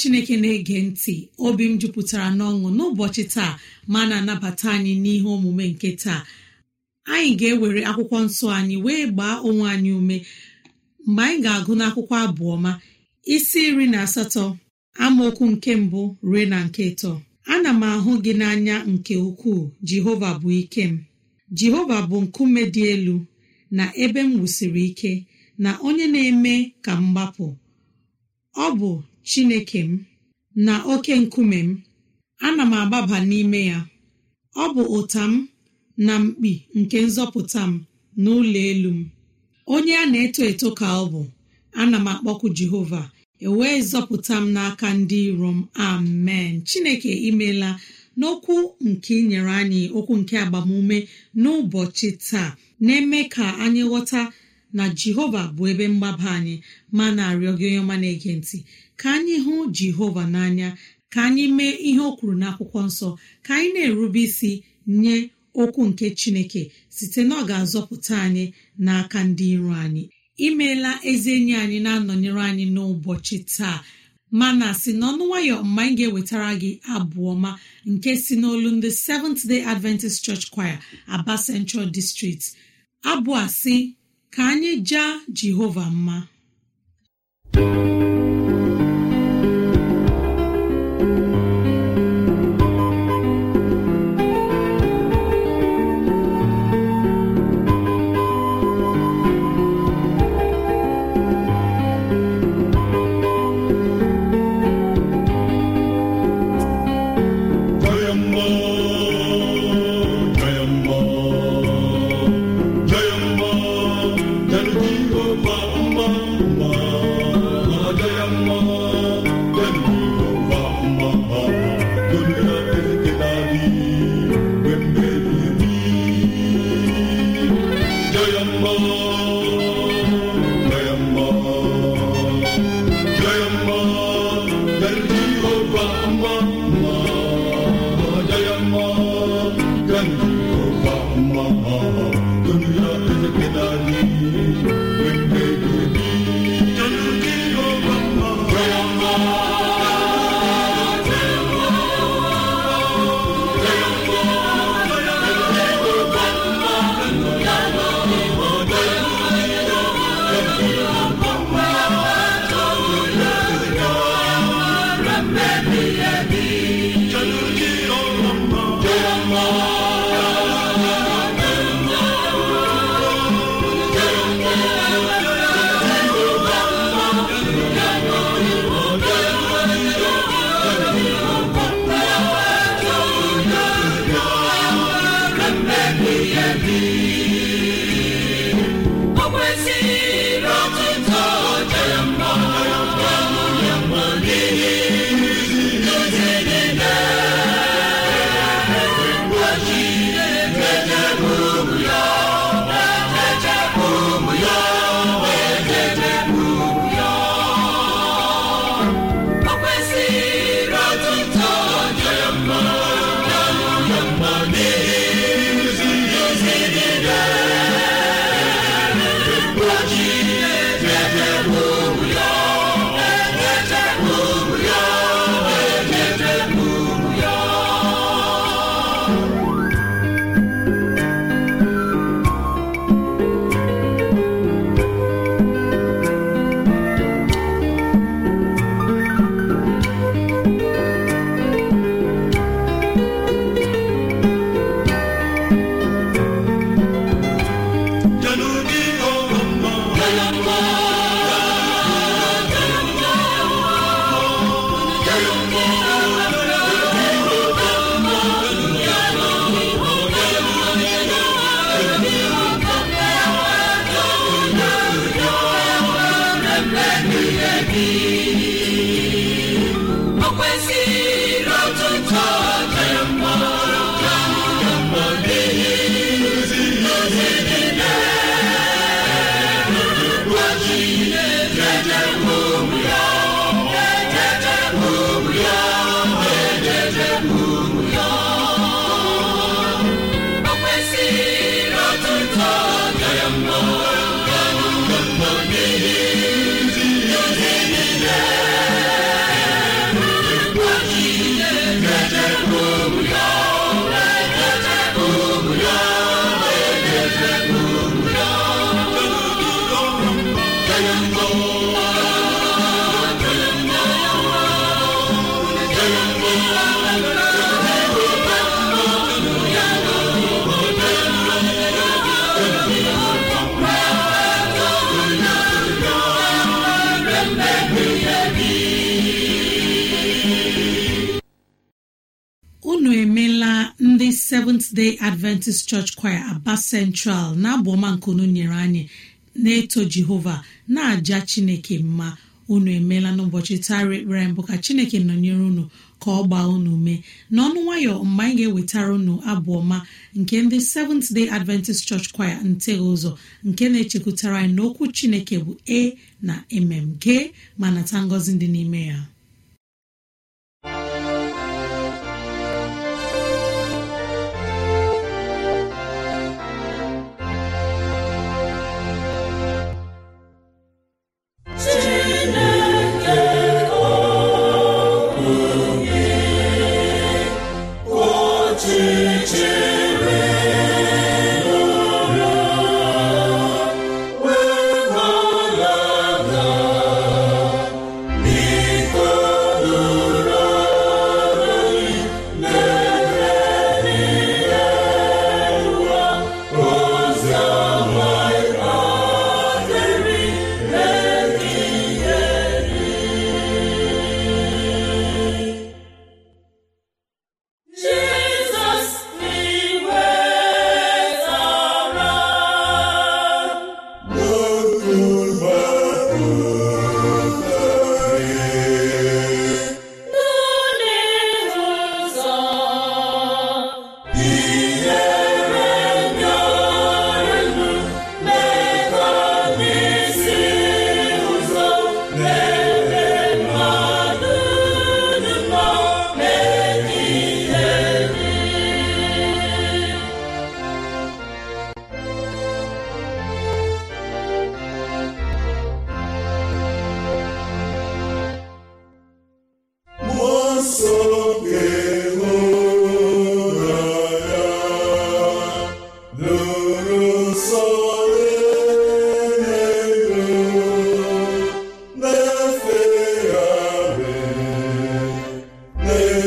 chineke na-ege ntị obi m jupụtara n'ọṅụ n'ụbọchị taa ma na-anabata anyị n'ihe omume nke taa anyị ga-ewere akwụkwọ nsọ anyị wee gbaa onwe anyị ume mgbe anyị ga-agụ n'akwụkwọ abụọ ma isi iri na asatọ amaokwu nke mbụ ruo na nke ịtọ ana m ahụ gị n'anya nke ukwuu jehova bụ ike m jehova bụ nkume dị elu na ebe m wusiri ike na onye na-eme ka m gbapụ ọ bụ chineke m na oke nkume m ana m agbaba n'ime ya ọ bụ ụta m na mkpi nke nzọpụta m n'ụlọ elu m onye a na-eto eto ka ọ bụ ana m akpọkụ jehova ewee zọpụta m n'aka ndị iro m amen chineke imela n'okwu nke inyere anyị okwu nke agbamume n'ụbọchị taa na-eme ka anyị ghọta na jehova bụ ebe mgbaba anyị ma na-arịọ gị onye ọma na-ege ntị ka anyị hụ jehova n'anya ka anyị mee ihe o kwuru n'akwụkwọ nsọ ka anyị na-erube isi nye okwu nke chineke site na ọ ga-azọpụta anyị n'aka ndị iro anyị imeela ezi enyi anyị na-anọnyere anyị n'ụbọchị taa mana si n'ọnụ nwayọ mgbe anyị ga-ewetara gị abụ ọma nke si n'olu ndị Seventh Day Adventist Church Choir, Aba Central District abụ a si ka anyị jaa jehova mma seventh day adventist church choir aba central na abụọma ọma nkunu nyere anyị na-eto jehova na-aja chineke mma unu emeela n'ụbọchị tara ekpere mbụ ka chineke nọnyere unu ka ọ gbaa unu mee n'ọnụ nwayọ mgbe anyị ga-ewetara unu abụọma ọma nke ndị seventh day adventist church choir nteghị ụzọ nke na-echekwutara anyị n'okwu chineke bụ e na mm gee ma nata ngọzi dị n'ime ya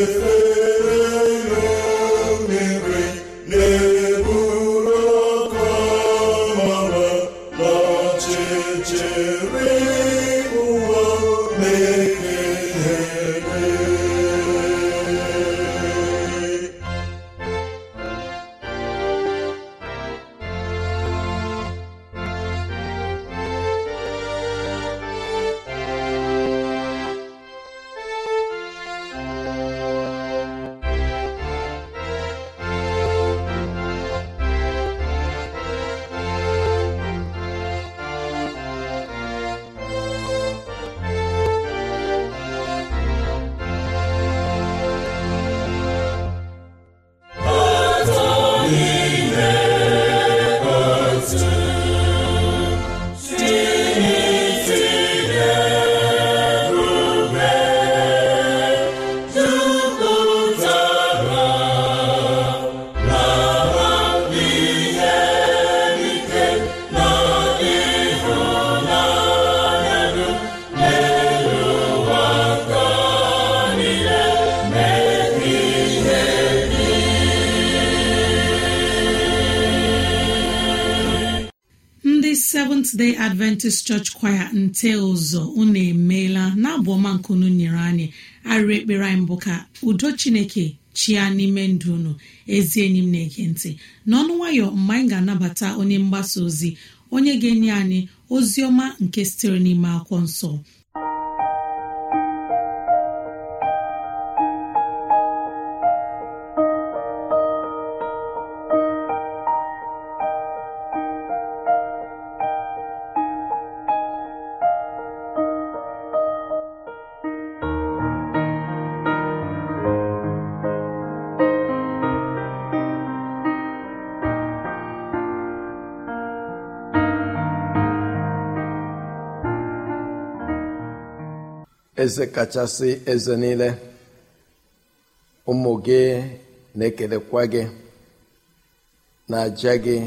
Christmas. adventist church kwaya nte ụzọ unu emeela na abụ ọma unu nyere anyị arịrị ekpere anyị mbụ ka udo chineke chia n'ime ndụ unu ezi enyi m na-ege ntị n'ọnụ nwayọ mgbe anyị ga-anabata onye mgbasa ozi onye ga-enye anyị ozi ọma nke sitere n'ime akwụkwọ nsọ eze kachasị eze niile ụmụ gị na-ekelekwa gị na-aja gị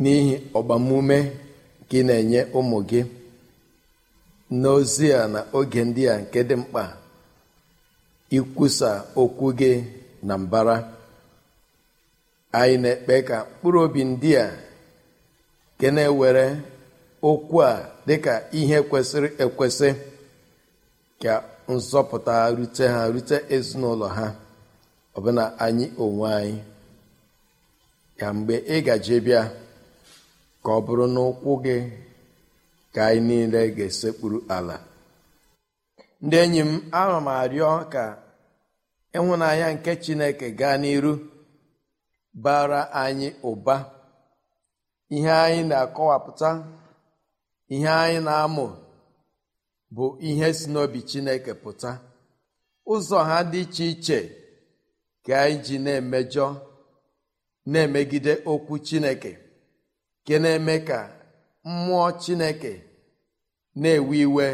n'ihi ọgbamume gị na-enye ụmụ gị n'ozi a na oge ndị a nke dị mkpa ikwusa okwu gị na mbara anyị na-ekpe ka mkpụrụ obi ndị a nke na-ewere okwu a dịka ihe kwesịrị ekwesị ka nzọpụta rute ha rute ezinụlọ ha ọbụna anyị onwe anyị ka mgbe ị gaje bịa ka ọ bụrụ na ụkwụ gị ka anyị niile ga-esekpuru ala ndị enyi m ana m arịọ ka ịhụnanya nke chineke gaa n'iru bara anyị ụba ihe anyị na-akọwapụta ihe anyị na-amụ bụ ihe si n'obi chineke pụta ụzọ ha dị iche iche ka anyị ji na-emejọ na-emegide okwu chineke ke na-eme ka mmụọ chineke na-ewe iwe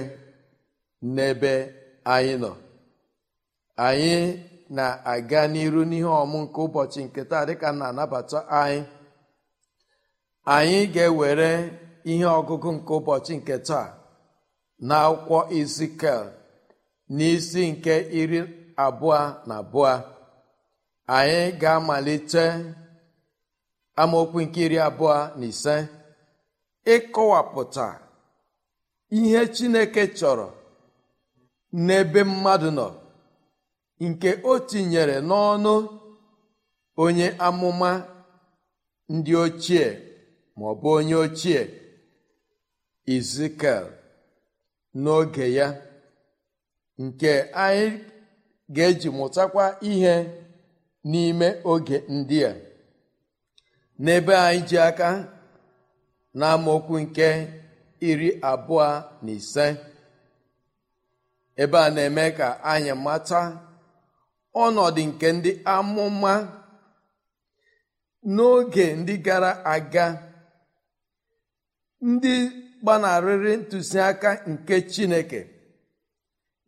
n'ebe anyị nọ anyị na-aga n'iru n'ihe ọmụ nke ụbọchị nke taa ka na-anabata anyị anyị ga-ewere ihe ọgụgụ nke ụbọchị nke taa na akwụkwọ izikel n'isi nke iri abụọ na abụọ anyị ga-amalite amaokwu nke iri abụọ na ise ịkọwapụta ihe chineke chọrọ n'ebe mmadụ nọ nke o tinyere n'ọnụ onye amụma ndị ochie ma ọ bụ onye ochie Ezekiel n'oge ya nke anyị ga-eji mụtakwa ihe n'ime oge ndị a n'ebe anyị ji aka na nke iri abụọ na ise ebe a na-eme ka anyị mata ọnọdụ nke ndị amụma n'oge ndị gara aga ndị gbanarịrị ntụziaka nke chineke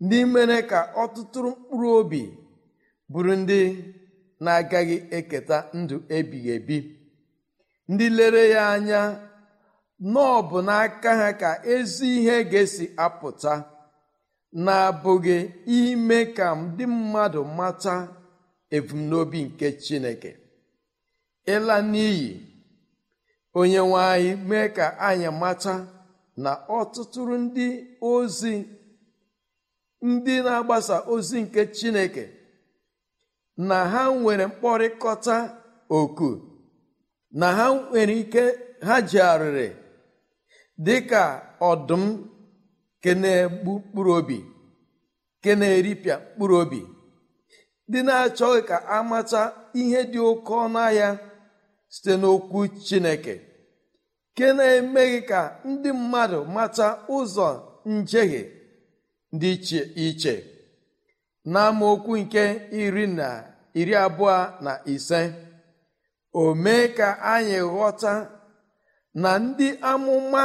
ndị mere ka ọtụtụ mkpụrụ obi bụrụ ndị na-agaghị eketa ndụ ebighị ebi ndị lere ya anya nọọ bụ n'aka ha ka ezi ihe ga-esi apụta na-abụghị ime ka ndị mmadụ mata ebumnobi nke chineke ịla n'iyi onye nwe anyị mee ka anyị mata na ọtụtụrụ ndị ozi ndị na-agbasa ozi nke chineke na ha nwere mkpọrịkọta oku na ha nwere ike ha ji arịrị dị ka ọdụm ke na-egbu mkpụrụ obi ke na-eripịa mkpụrụ obi dị na-achọghị ka amata ihe dị oke ọnụ ahịa site n'okwu chineke nke na-emeghị ka ndị mmadụ mata ụzọ njehie dị iche iche n'amaokwu nke iri na iri abụọ na ise o mee ka anyị ghọta na ndị amụma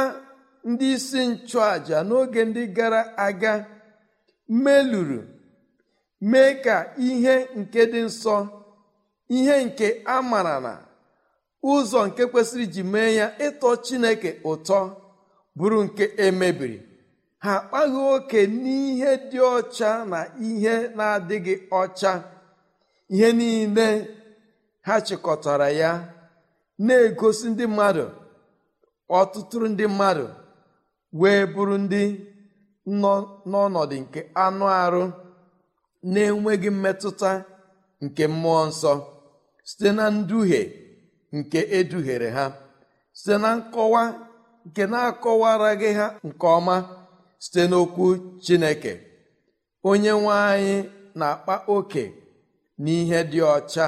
ndị isi nchụàjà n'oge ndị gara aga meluru mee ka ihe nke dị nsọ ihe nke a mara na ụzọ nke kwesịrị iji mee ya ịtọ chineke ụtọ bụrụ nke emebiri ha akpaghị oke n'ihe dị ọcha na ihe na-adịghị ọcha ihe niile ha chịkọtara ya na-egosi ndị mmadụ ọtụtụ ndị mmadụ wee bụrụ ndị nọ n'ọnọdụ nke anụ arụ na-enweghị mmetụta nke mmụọ nsọ site na nduhie nke eduhere ha site na nkọwa nke na-akọwaraghị ha nke ọma site n'okwu chineke onye nwe anyị na-akpa oke n'ihe dị ọcha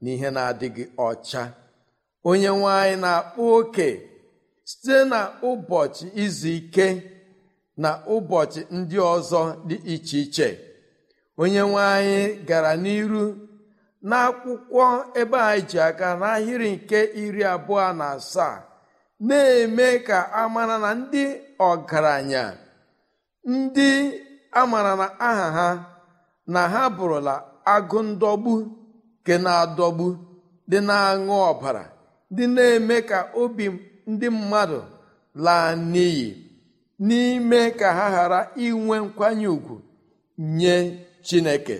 na ihe na-adịghị ọcha onye nwe anyị na-akpa oke site na ụbọchị izu ike na ụbọchị ndị ọzọ dị iche iche onye nwe gara n'iru n'akwụkwọ ebe a ji aga n'ahịrị nke iri abụọ na asaa na-eme ka amara na ndị ọgaranya ndị amara na aha ha na ha bụrụla agụ ndọgbu nke na-adọgbu dị na-aṅụ ọbara dị na-eme ka obi ndị mmadụ laa n'iyi n'ime ka ha ghara inwe nkwanye ùgwù nye chineke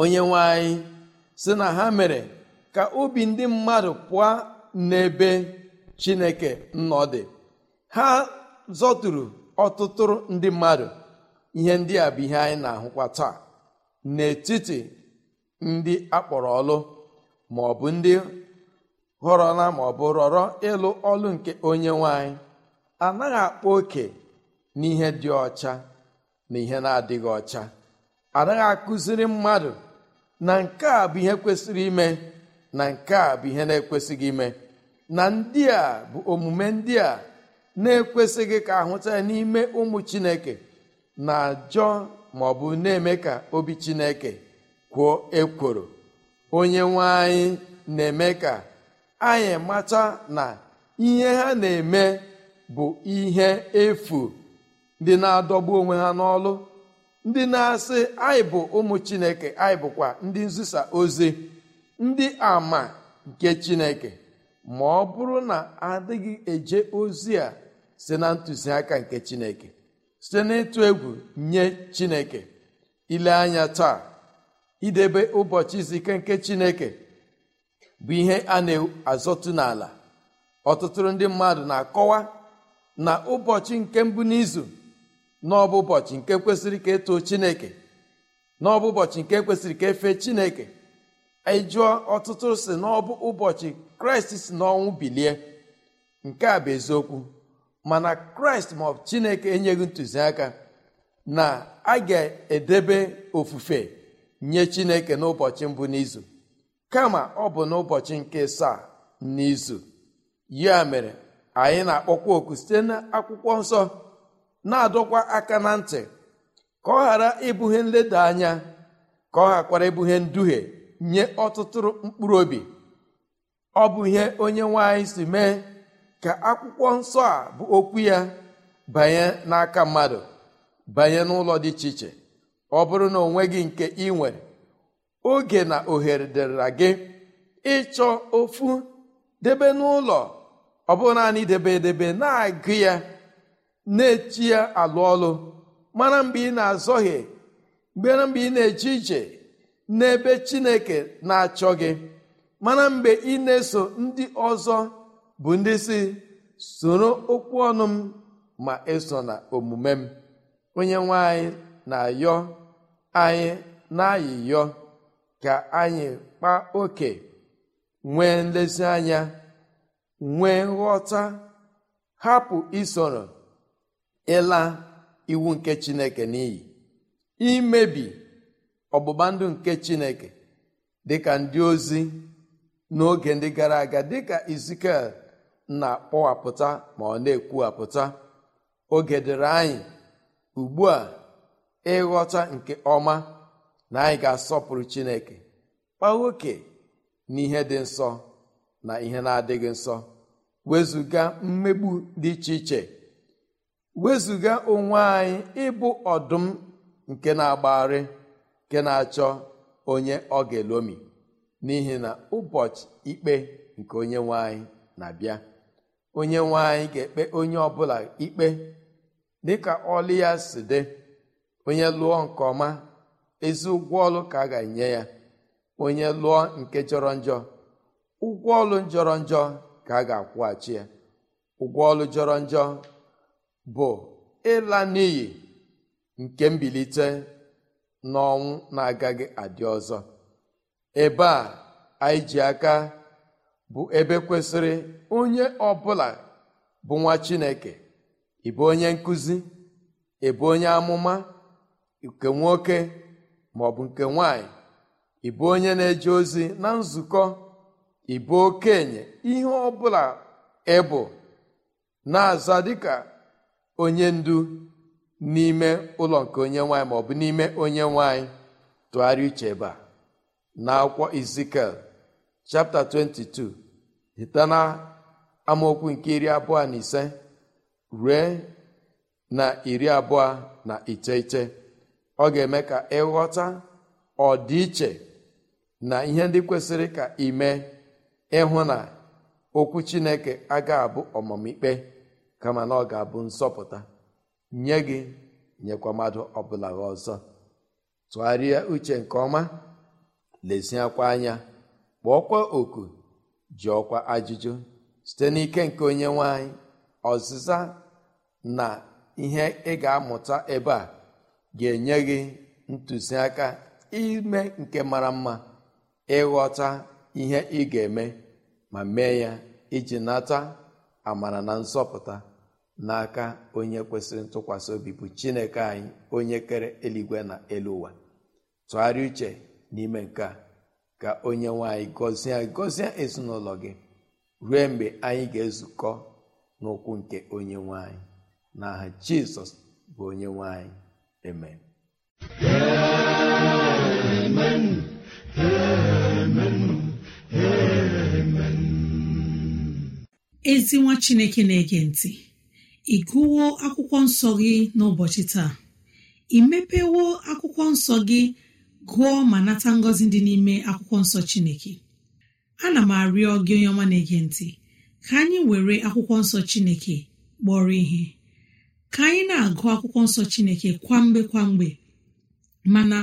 onye nwe si na ha mere ka obi ndị mmadụ pụọ n'ebe chineke nnọ dị ha zọturu ọtụtụ ndị mmadụ ihe ndị a bụ ihe anyị na-ahụkwa taa n'etiti ndị akpọrọ ọlụ ma ọ bụ ndị họrọla ma ọ bụ rọrọ ịlụ ọlụ nke onye nwanyị anaghị akpa oke n'ihe dị ọcha na ihe na-adịghị ọcha anaghị akụziri mmadụ na nke a bụ ihe kwesịrị ime na nke a bụ ihe na-ekwesịghị ime na ndị a bụ omume ndị a na-ekwesịghị ka ahụta ya n'ime ụmụ chineke na-ajọ ma ọ bụ na-eme ka obi chineke kwuo ekworo onye nwe anyị na-eme ka anyị mata na ihe ha na-eme bụ ihe efu dị na-adọgbu onwe ha n'ọlụ ndị na-asị anyị bụ ụmụ chineke anyị bụkwa ndị nzisa ozi ndị ama nke chineke ma ọ bụrụ na adịghị eje ozi a si na ntụziaka nke chineke site n'ịtụ egwu nye chineke ile anya taa idebe ụbọchị zike nke chineke bụ ihe a na-azọtụ n'ala ọtụtụ ndị mmadụ na-akọwa na ụbọchị nke mbụ n'izu n'ọbụ ụbọchị nke kwesịrị ka etoo chineke n'ọbụ ụbọchị nke kwesịrị ka efe chineke anyị e jụọ ọtụtụ si n'ọbụ ụbọchị kraịst si n'ọnwụ bilie nke a bụ eziokwu mana kraịst ma ọbụ chineke enyeghị ntụziaka na a ga-edebe ofufe nye chineke n'ụbọchị mbụ n'izu kama ọ bụ n'ụbọchị nke saa n'izu ya mere anyị na-akpọkwa oku site n'akwụkwọ nsọ na-adọkwa aka na ntị ka ọ ghara ibughe nleda anya ka ọ ghakwara ibughe nduhie nye ọtụtụrụ mkpụrụ obi ọ bụ ihe onye nwanyị si mee ka akwụkwọ nsọ a bụ okwu ya banye n'aka mmadụ banye n'ụlọ dị iche iche ọ bụrụ na onwe gị nke ị nwere oge na ohere dịrịra gị ịchọ ofu debe n'ụlọ ọ debe edebe na-agụ ya na echi ya alụ ọlụ mara mgbe ị na-azọghị mgbera mgbe ị na-eje ije n'ebe chineke na-achọ gị mana mgbe ị na-eso ndị ọzọ bụ ndị si soro okwu ọnụ m ma eso na omume m onye nwe anyị na-ayọ anyị na-ayịyọ ka anyị kpa oke nwee nlezianya nwee nghọta hapụ isoro ịla iwu nke chineke n'iyi imebi ọgbụgba ndụ nke chineke dịka ndị ozi n'oge ndị gara aga dịka izikiel na-akpọwapụta ma ọ na-ekwuwapụta oge dịrị anyị ugbu a ịghọta nke ọma na anyị ga-asọpụrụ chineke kpa nwoke n'ihe dị nsọ na ihe na-adịghị nsọ wezụga mmegbu dị iche iche wezụga onwe anyị ịbụ ọdụm nke na-agbagharị nke na-achọ onye ọ ga-elomi n'ihi na ụbọchị ikpe nke onye nwanyị na-abịa onye nwanyị anyị ga-ekpe onye ọbụla ikpe dịka ọlụ ya si dị onye lụọ nke ọma ezi ụgwọ ọlụ ka a ga-enye ya onye lụọ nke jọrọ njọ ụgwọ ọlụ jọrọ njọ ka a ga-akwụghachi ya ụgwọ ọlụ jọrọ njọ bụ ịla n'iyi nke mbilite n'ọnwụ na-agaghị adị ọzọ ebe a anyị ji aka bụ ebe kwesịrị onye ọbụla bụ nwa Chineke ịbụ onye nkụzi ịbụ onye amụma nke nwoke maọbụ nke nwanyị ịbụ onye na-eje ozi na nzukọ ịbụ okenye ihe ọbụla ịbụ na-aza dịka onye ndu n'ime ụlọ nke onye nwanyị maọbụ n'ime onye nwanyị tụgharịa uche ebe a na akwụkwọ izikel chapta 22 hita na amaokwu nke iri abụọ na ise rue na iri abụọ na iteghete ọ ga-eme ka ịghọta ọdịiche na ihe ndị kwesịrị ka ime ịhụ na okwu chineke agaghị abụ ọmamikpe kama na ọ ga-abụ nsọpụta nye gị nyekwa mmadụ ọbụla gị ọzọ tụgharịa uche nke ọma leziakwa anya kpọọkwa oku ọkwa ajụjụ site n'ike nke onye nwanyị ọzịza na ihe ị ga-amụta ebe a ga-enye gị ntụziaka ime nke mara mma ịghọta ihe ị ga-eme ma mee ya iji nata amara na nsọpụta n'aka onye kwesịrị ntụkwasị obi bụ chineke anyị onye kere eluigwe na elu ụwa tụgharịa uche n'ime nke a ka onye nwanyị gọzie gọzie ezinụlọ gị ruo mgbe anyị ga-ezukọ n'ụkwụ nke onye nwanyị n'aha jizọs bụ onye nwanyị amen ezi nwa chineke na-ege ntị ị gụwo akwụkwọ nsọ gị n'ụbọchị taa ị mepewo akwụkwọ nsọ gị gụọ ma nata ngọzi dị n'ime akwụkwọ nsọ chineke ana m arịọ gị onye ọma na-ege ntị ka anyị were akwụkwọ nsọ chineke kpọrọ ihe ka anyị na-agụ akwụkwọ nsọ chineke kwamgbe kwamgbe mana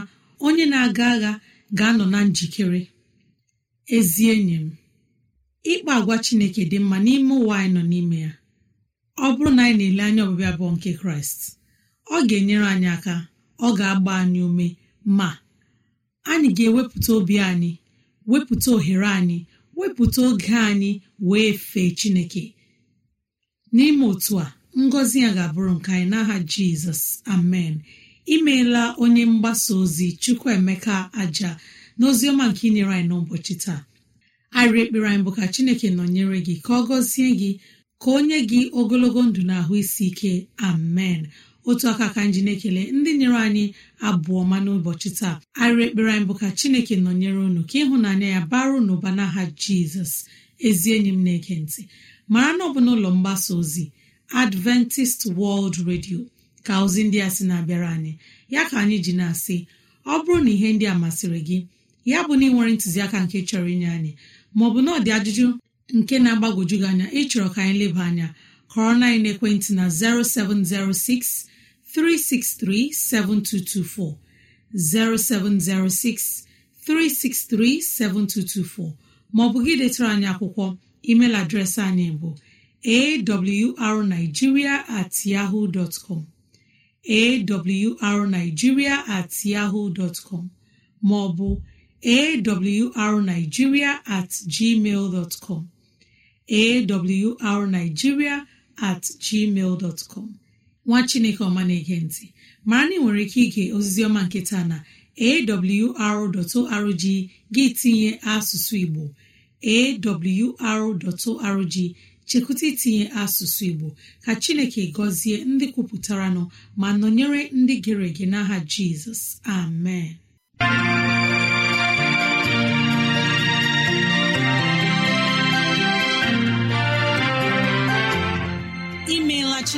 onye na-aga agha ga-anọ na njikere ezi enyi m ịkpa agwa chineke dị mma n'ime ụwa anyị nọ n'ime ya ọ bụrụ na anyị na-ele anya ọbịbịa nke kraịst ọ ga-enyere anyị aka ọ ga-agba anyị ume ma anyị ga-ewepụta obi anyị wepụta ohere anyị wepụta oge anyị wee fee chineke n'ime otu a ngọzi ya ga-abụrụ nke anyị n'aha jizọs amen imeela onye mgbasa ozi chukwuemeka aja na ọma nke inyere anyị n'ụbọchị taa arịa ekpere anyị bụ ka chineke nọnyere gị ka ọ gọzie gị ka o nye gị ogologo ndụ na ahụ isi ike amen otu aka ka nji na-ekele ndị nyere anyị abụọ ma n'ụbọchị taa arịa ekpere anyị bụ ka chineke nọnyere unu ka ịhụnanya ya baru n'ụba n'aha jizọs ezi enyi m na-ege ntị mara na ọ bụ n'ụlọ mgbasa ozi adventist world radio ka ozi ndị a sị na-abịara anyị ya ka anyị ji na-asị ọ bụrụ na ihe ndị a masịrị gị ya bụ na ị nwere ntụziaka nke chọrọ inye anyị maọbụ na ọ dị ajụjụ nke na-agbagwoju gị anya ịchọrọ ka anyị leba anya kọrọ na ekwentị na 0706 363 7224 0706 363 7224 maọbụ gị detara anyị akwụkwọ emeil adreesị anyị bụ awrnigeria at yahoo dot com maọbụ awrnigeria at gmail dot com at gmail com nwa chineke ọma na-ege mara na ị nwere ike ige ozizioma nke taa na awr.org gị tinye asụsụ igbo awr.org chekwụta itinye asụsụ igbo ka chineke gọzie ndị kwupụtara nọ ma nọnyere ndị gere ege n'aha jizọs amen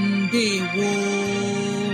Ndewo